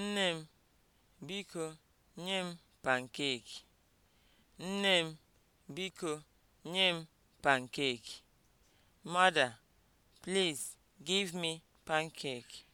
Nne m, biko nye m pankeki. Nne m, biko nye m pankeki. Mother, please give me pancake.